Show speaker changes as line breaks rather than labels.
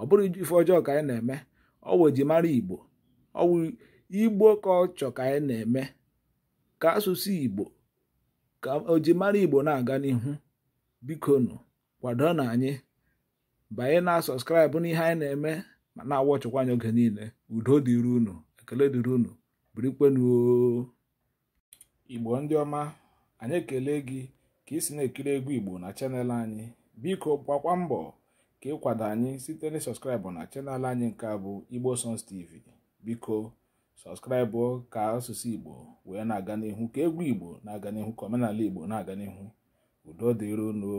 ọ bụrụ ife ọjọọ ka anyị na-eme ọwụ ejimara igbo ọwụ igbo ka ọ chọ ka anyị na-eme ka asụsụ igbo ka ojimara igbo na-aga n'ihu biko nụ kwado na anyị banye na sọskraịbụ n'ihe anyị na-eme ma na-awọ ọchịkwa anyị oge niile udo dịrị unu ekele dịrị unu birikwenuo igbo ndị ọma anyị ekele gị ka ị si na-ekiri egwu igbo na chanel anyị biko gbakwa mbọ ka ịkwado anyị site na na chanel anyị nke bụ igbo sons tv biko sọskraịbụ ka asụsụ igbo wee na-aga n'ihu ka egwu igbo na-aga n'ihu ka omenala igbo na-aga n'ihu udo dịrono